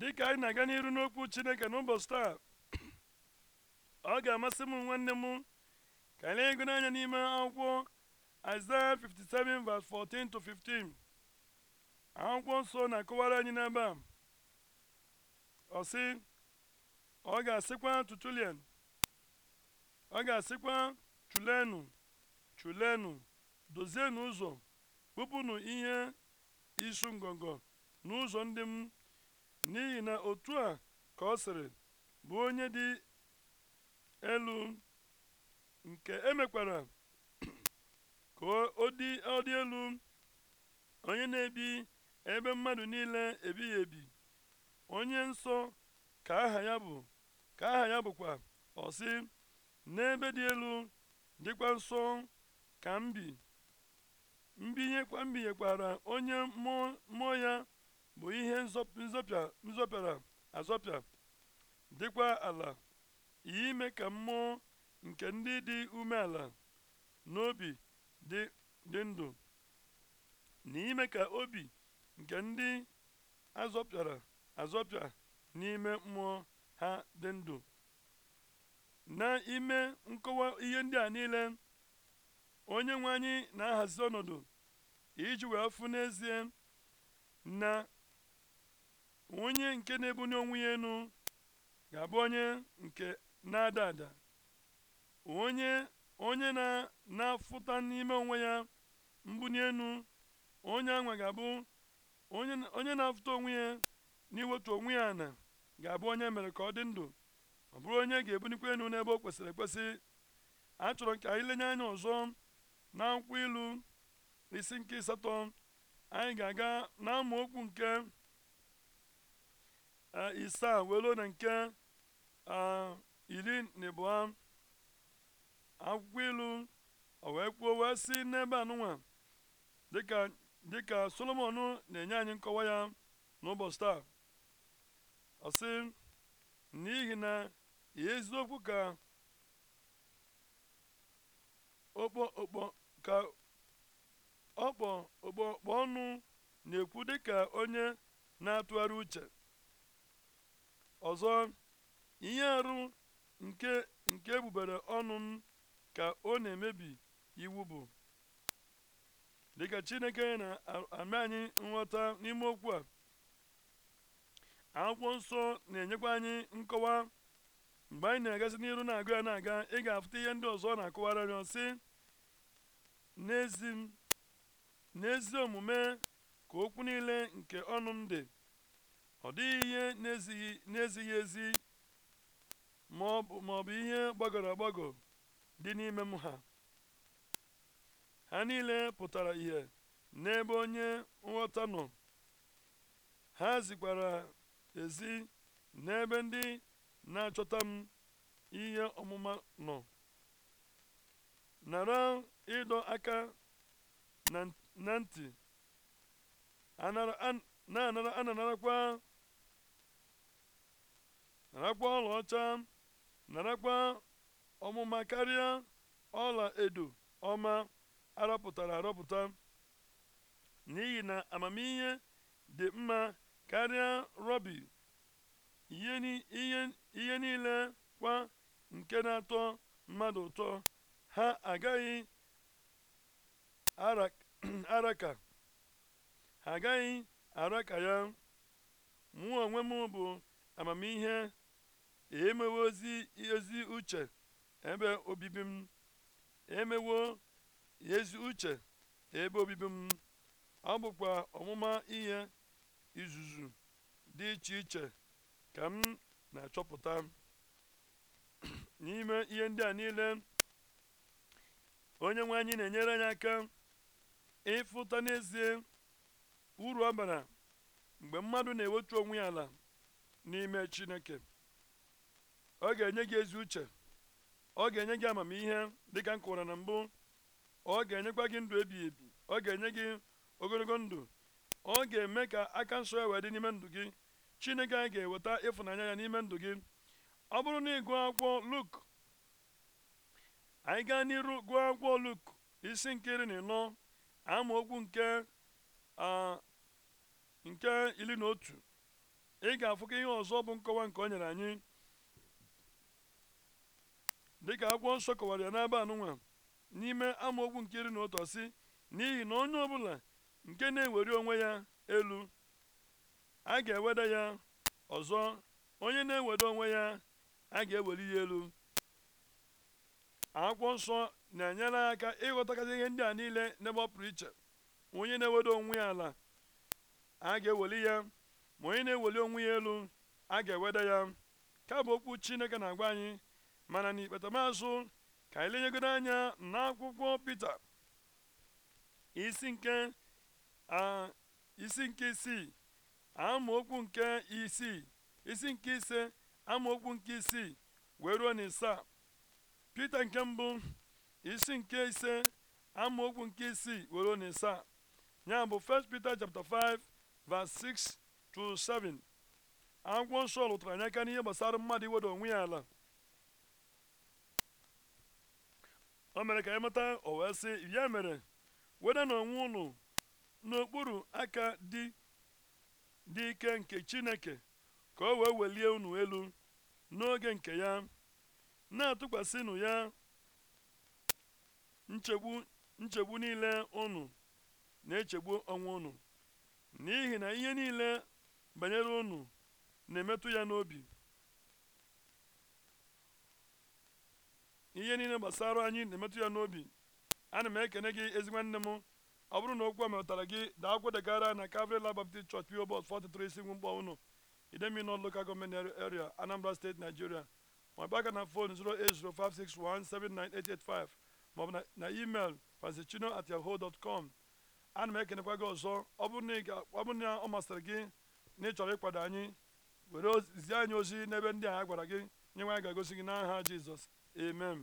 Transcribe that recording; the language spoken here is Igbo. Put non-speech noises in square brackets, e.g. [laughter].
dịka anyị na-aga n'iru n'okwu chineke n'ụbọchị taa ọ ga-amasị m nwanne m ka anyị ego n'anya n'ime akwụkwọ Aịzaya 57 verse 14 to 15 akwụkwọ nsọ na-akọwara anyị n'ebe a ọ ọ ga-asịkwa tutulian ọ ga-asịkwa chulenụ chulenụ dozienụ ụzọ kpụpụnụ ihe isu ngọngọ n'ụzọ ndị m n'ihi na otu a ka ọ sịrị bụ onye dị elu nke emekwara ka ọ dị elu onye na-ebi ebe mmadụ niile ebighị ebi onye nsọ ka aha ya bụ ka aha ya bụkwa ọsị n'ebe dị elu dịkwa nsọ ka mbi mbinyekwara onye mmụọ ya bụ ihe nzọpịara azọpịa dịkwa ala ime ka mmụọ nke ndị dị umeala n'obi dị ndụ na ime ka obi nke ndị azọpịara azọpịa n'ime mmụọ ha dị ndụ n'ime nkọwa ihe ndị a niile onye nwe anyị na-ahazi ọnọdụ iji wee fụ n'ezie na onye nke na ebunye onwe ya ga-abụ onye nke na-ada ada onye onye na-afụta n'ime onwe ya mbuli elu onye anwa ga-abụ onye na-afụta onwe ya n'iwetu onwe ya na ga-abụ onye e mere ka ọ dị ndụ ọ bụrụ onye ga ebunikwa elu n'ebe o kwesịrị ekwesị a chọrọ ka anyị lenye anya ọzọ na akwụkwọ ilu isi nke asatọ anyị ga-aga na amaokwu nke Ah, isaa welu ah, ah, na nke iri na abụọ akwụkwọ ilu o wee kwuo wee si n'ebe anụnwa dịka dịka solomon na-enye anyị nkọwa ya n'ụbọchị taa ọ sị n'ihi na eziokwu ka okpo okpo ka ọkpọ ọnụ na-ekwu dịka onye na-atụgharị uche ọzọ ihe arụ nke nke ebubere ọnụ m ka ọ na-emebi iwu bụ dịka chineke na-ame anyị nghọta n'ime okwu a akwụkwọ nsọ na-enyekwa anyị nkọwa mgbe anyị na-agasị n'iru na-agụ ya na-aga ị ga-afụta ihe ndị ọzọ na-akọwara rịọ sị n'ezi omume ka okwu niile nke ọnụ m dị ọ dịghị ihe na-ezighị ezi ma ọ bụ ihe gbagọrọ agbagọ dị n'ime m ha ha niile pụtara ihe n'ebe onye nghọta nọ ha zikwara ezi n'ebe ndị na-achọta m ihe ọmụma nọ nara ịdọ aka na ntị na-anarakwa narakwa ọlaọcha narakwa ọmụma karịa ọla edo ọma arọpụtara arọpụta n'ihi na amamihe dị mma karịa rọbi ihe niile kwa nke na-atọ mmadụ ụtọ ha agaghị araka [clears throat] ha agaghị araka ya mụ onwe m bụ amamihe emewo ozi ezi uche ebe obibi m emewo ezi uche ebe obibi m ọ bụkwa ọmụma ihe izuzu dị iche iche ka m na-achọpụta [clears throat] n'ime ihe ndị a niile onye nwe anyị na-enyere anyị aka ịfụta n'ezie uru ọ bara mgbe mmadụ na-ewetu onwe ya ala n'ime chineke ọ ga-enye gị ezi uche ọ ga-enye gị amamihe dịka m kụwara na mbụ ọ ga-enyekwa gị ndụ ebighị ebi ọ ga-enye gị ogologo ndụ ọ ga-eme ka aka nsọ ya wee dị n'ime ndụ gị chineke anyị ga-eweta ịfụnanya ya n'ime ndụ gị ọ bụrụ na ị gụọ akwụkwọ luk anyị gaa n'iru gụọ akwụkwọ luk isi nkiri na ịnọ amaokwu nke nke iri na otu ị ga-afụkọ ihe ọzọ bụ nkọwa nke o nyere anyị dịka akwụkwọ nsọ kọwara ya n'aba anụnwa n'ime amaokwu nke iri na ụtọ si n'ihi na onye ọbụla nke na-ewere onwe ya elu a ga-eweda ya ọzọ onye na-eweda onwe ya a ga-eweli ya elu akwụkwọ nsọ na-enyere aka ịghọtakasị ihe ndị a niile n'ebe ọ pụrụ iche onye na-eweda onwe ya ala a ga-eweli ya ma onye na-eweli onwe ya elu a ga-eweda ya ka bụ okwu Chineke na-agwa anyị mana n'ikpetamazụ ka anyị lenyegoro anya n'akwụkwọ Pita isi nke isi nke isii amaokwu nke isii isi nke ise amaokwu nke isii wee ruo na isaa nke mbụ isi nke ise amaokwu nke isii wee ruo ya bụ 1 Peter chapter 5 6 to 7 akwụkwọ nsọ lụtara anya aka n'ihe gbasara mmadụ iwedo onwe ya ala o mere ka anyị mata wee sị ya mere weda na onwe ụnụ n'okpuru aka dị dị ike nke chineke ka o wee welie unu elu n'oge nke ya na-atụkwasịnụ ya nchegbu nchegbu niile unu na-echegbu onwe unu n'ihi na ihe niile banyere unu na-emetụ ya n'obi ihe niile gbasara anyị na-emetụ ya n'obi ana m ekene gị ezi nwanne m ọ bụrụ na okwu a metara gị daa kwedegara na Calvary Land Baptist Church PO Box 43 Isingwu Mgbaw unu Idemili North Local gọọmenti Area Anambra steeti Nigeria ma ọ bụ aka na fon 08056179885 ma ọ bụ na email francischino at yahoo dot com ana m ekenekwa gị ọzọ ọ bụrụ na ọ masịrị gị na ị chọrọ ịkwado anyị were zie anyị ozi n'ebe ndị a ha gwara gị nye nwa ga egosi gị n'aha Jizọs amen